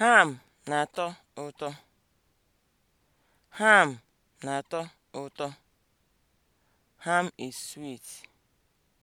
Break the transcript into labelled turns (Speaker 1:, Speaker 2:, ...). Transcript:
Speaker 1: Ham na-atọ ụtọ. Ham na-atọ ụtọ. Ham is sweet.